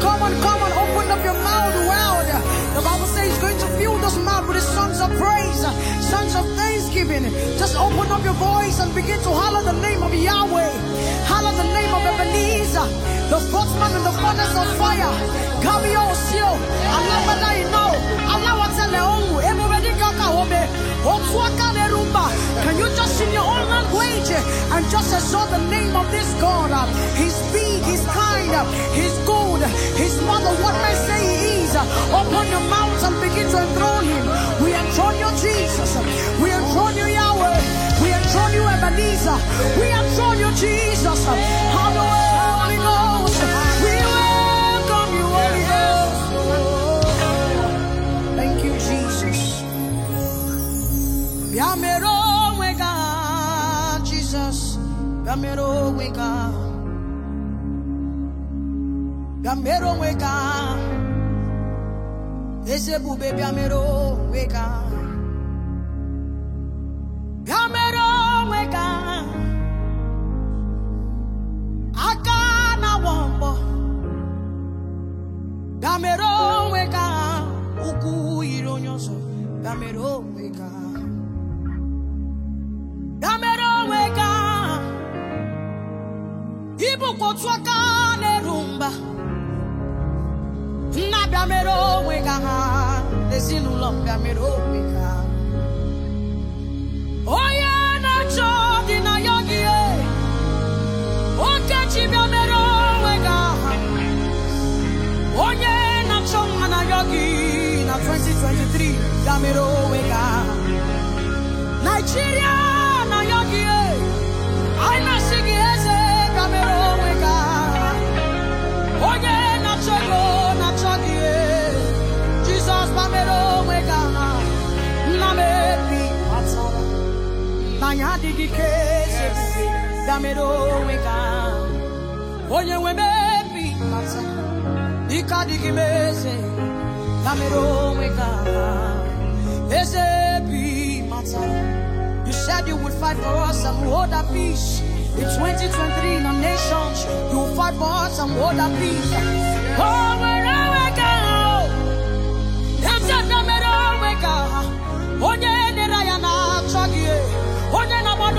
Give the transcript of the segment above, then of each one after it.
come on, come on. Open up your mouth well The Bible says he's going to fill those mouth with his songs of praise, songs of thanksgiving. Just open up your voice and begin to holler the name of Yahweh. Holler the name of Ebenezer, the spokesman in the furnace of fire. Kami osio, alabada ino, alawatele ongu, emubedi kaka obe, otuaka Can you just in your own language and just exalt the name of this God? He's big, he's kind, he's good. food. His mother, what may say he is, your mouth and begin to enthrone him. We enthrone you, Jesus. We enthrone you, Yahweh. We enthrone you, Ebenezer. We enthrone you, Jesus. bịa mere onwe ka eze ebube bịa mere onwe ka bịa mere onwe ka aka na-awọ mbọ bịa mere onwe ka ụkwụ yiri onye ọzọ bịa mere onwe ka bịa mere onwe ka ịbụkwa otu aka na-eru mba onye na-achọ dị na gị okechi bịa mere onwe onye na-achọ mma na gị na 2023 ya mere onwe Nigeria adịghị ike echebube damere onwe ka onye nwe mebi mata ike adịghị m eze damere onwe ka eze bi mata You said you would fight for us and hold our peace. In 2023, in our nations, you will fight for us and hold our peace. Oh, wherever we go, that's a damn onwe all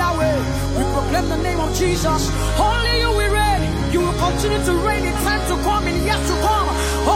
Yahweh. We proclaim the name of Jesus. Only you we reign. You will continue to reign in time to come, in years to come.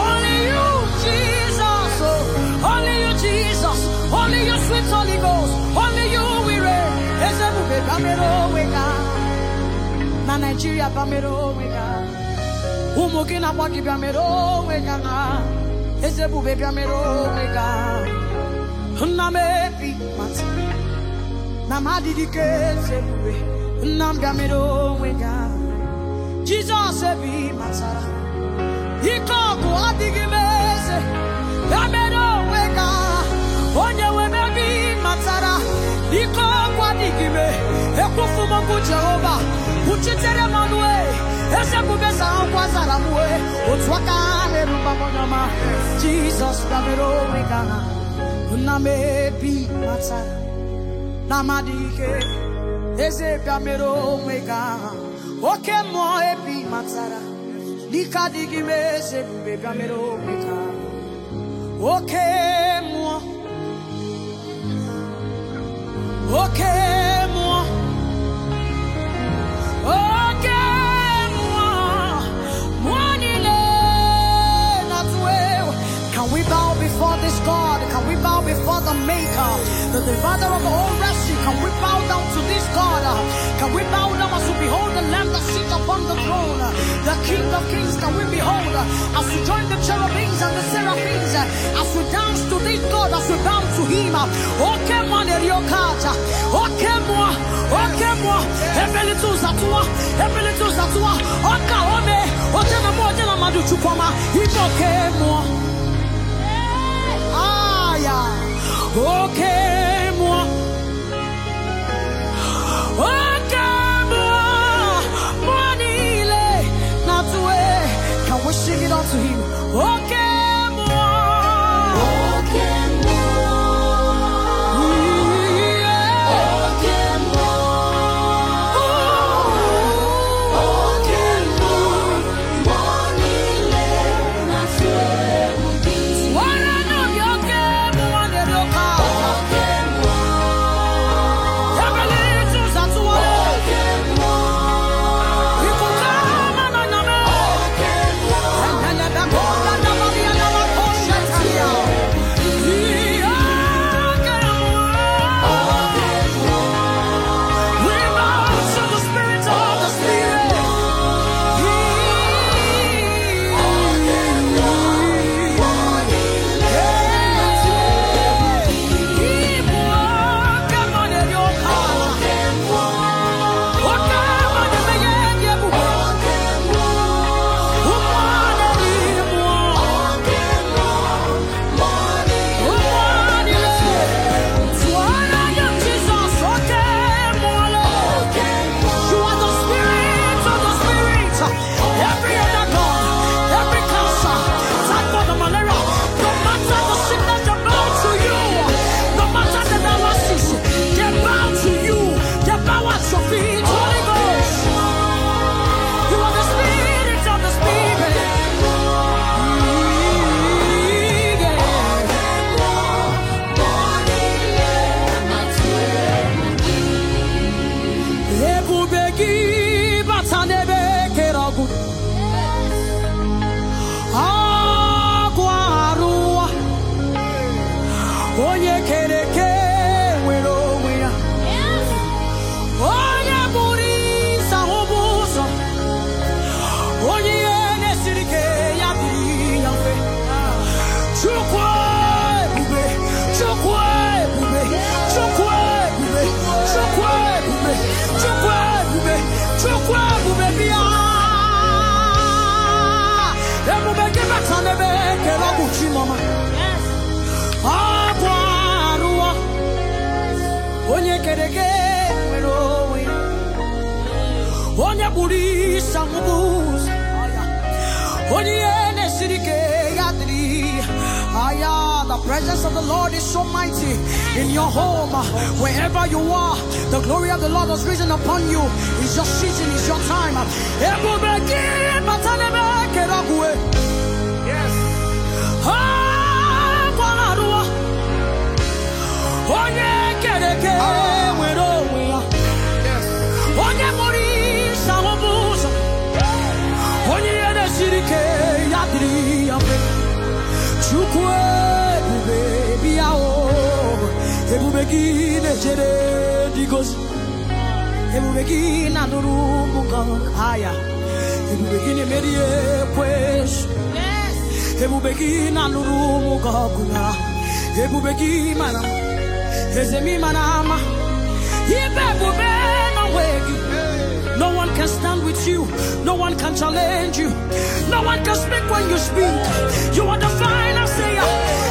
Only you, Jesus. Oh, only you, Jesus. Only you, sweet Holy Ghost. Only you we reign. Ezebube bamero wega. Na Nigeria bamero wega. Ụmụ gị na-agba gị bịamero wega na. Ezebube bịamero wega. Nna m ebi na m ka eze ebube nna m onwe gị jizọs ebe ị matara ike ọkụ adịghị eze ya mere onwe gị onye nwe m ị matara ike ọkụ adịghị ekwufu m okwu jehova kwuchitere m ọnụ e. eze bube zara nkwa zara m e. otu aka na jizọs onwe gị ahụ matara ike eze bịa mere onwe gaa oke mmụọ ebi matara n'ike m eze ebube bịa mere onwe gaa oke mmụọ oke bow before the Maker, the Divider of all mercy. Can we bow down to this God? Can we bow down as we behold the Lamb that sits upon the throne, the King of Kings? Can we behold as we join the cherubims and the seraphims, as we dance to this God, as we bow to Him? Oh, come on, Eriokata. Oh, come on. Oh, come on. Heavenly tools at one. Heavenly tools at one. Oh, come on. Oh, come on. Oh, come kaburi sangubus Oniene sirike yadri Aya, the presence of the Lord is so mighty in your home, wherever you are. The glory of the Lord has risen upon you. It's your season, it's your time. Yes. Oh, kereke ebube gị na-echere ndị gozi ebube gị na-anụrụ ụmụ gị aya ebube gị na-emeri ekwesụ ebube gị na-anụrụ ụmụ gị ọgụ na ebube gị mara eze m ịmara ama ibe ebube n'onwe gị No one can stand with you. No one can challenge you. No one can speak when you speak. You are the final sayer.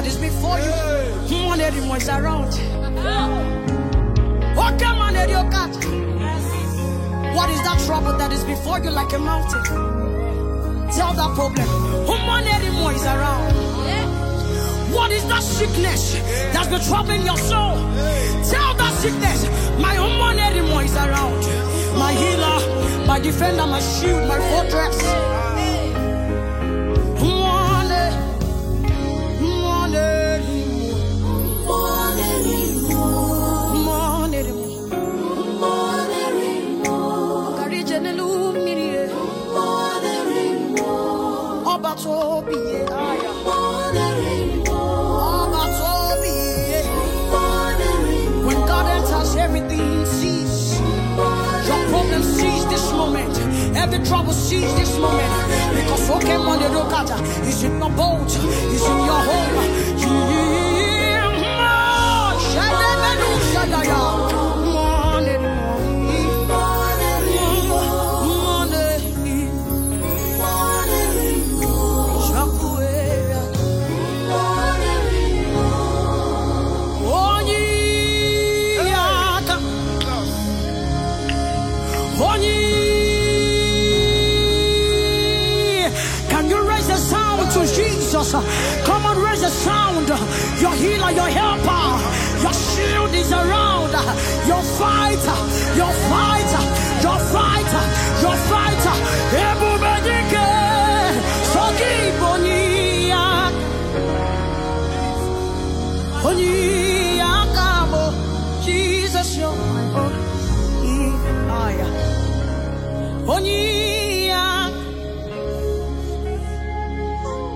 that is before you. One lady was around. Oh, come on, lady, God. What is that trouble that is before you like a mountain? Tell that problem. human lady is around. What is that sickness that's been troubling your soul? Tell that sickness, my human anymore is around. My healer, my defender, my shield, my fortress. seize this moment. Because Pokemon, you look at, is in your boat, is in your home. You, you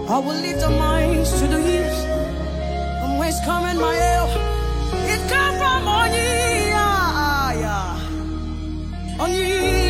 I will lift our minds to the hills from whence coming my help. It comes from on ye, yeah, on ye.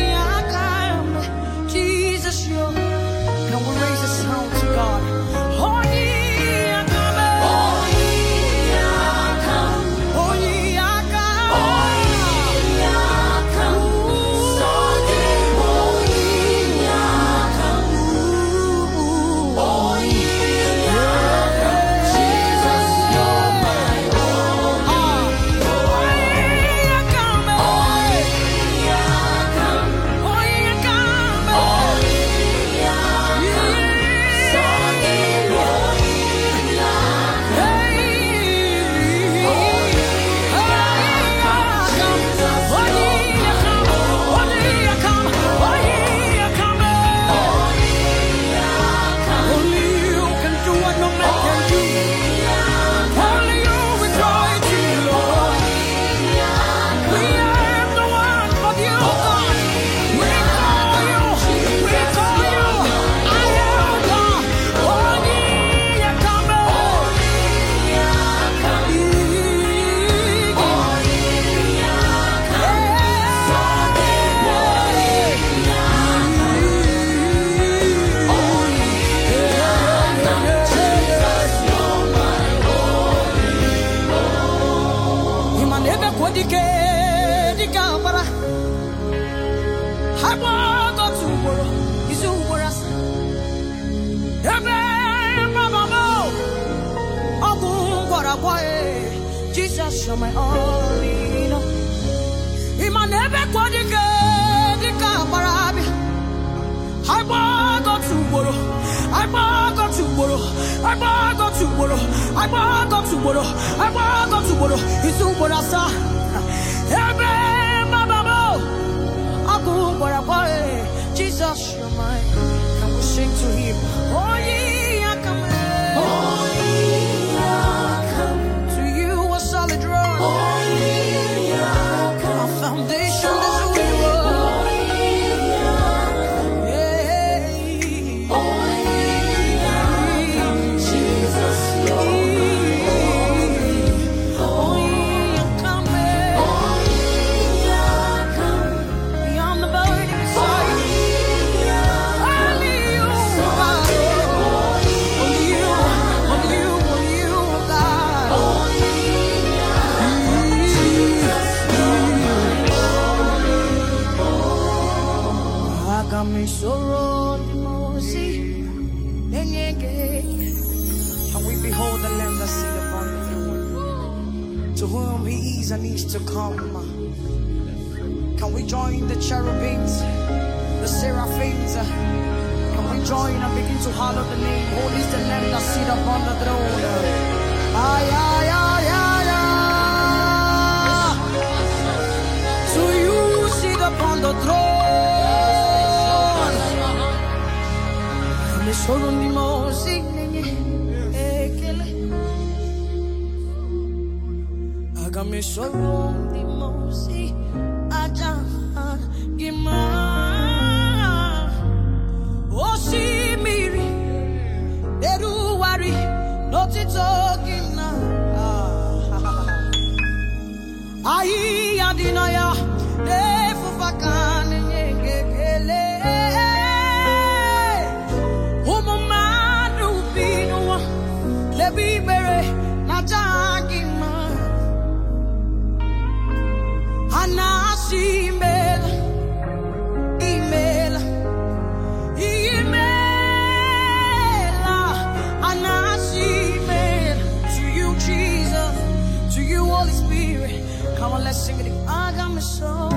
Ị ma na ebe kwa dike dike agbara abịa, agba ugboro, agba agọtụ ugboro, agba ugboro, agba ugboro, asaa. Ebe mababa ọkụ gbara kwa you're mine, i will sing to him. Eh, eh, le sono limosine ekele Aga dị oh, sono limosi aja gima Osimiri eruwari n'ọtụtụ gị na ahịhịa dị na ya singing, I got my soul.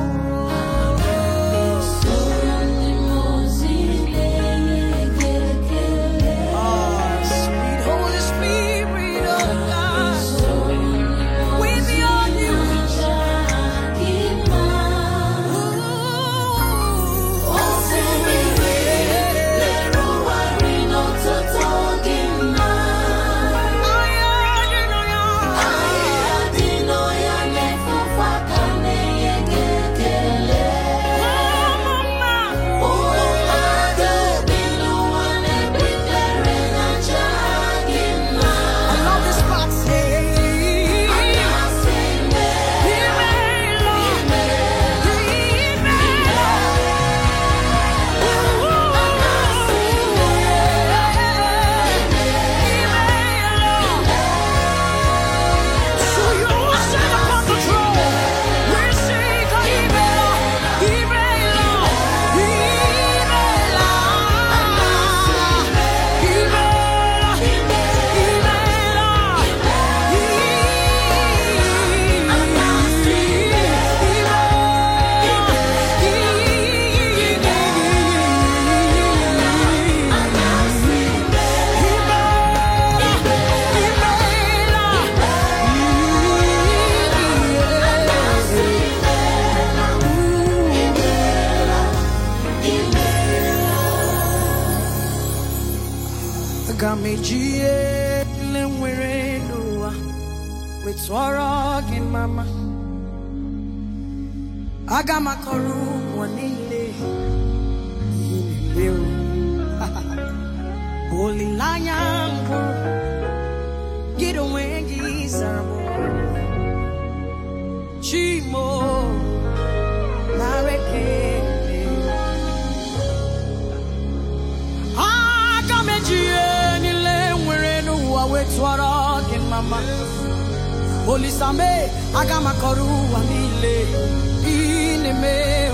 aga m akọrọ ụwa niile ihe olileanya mbụ gị onwe gị zara m chimo nareke aga m eji niile nwere n'ụwa wee tụọrọ gị mma olisame aga m akọrọ ụwa niile me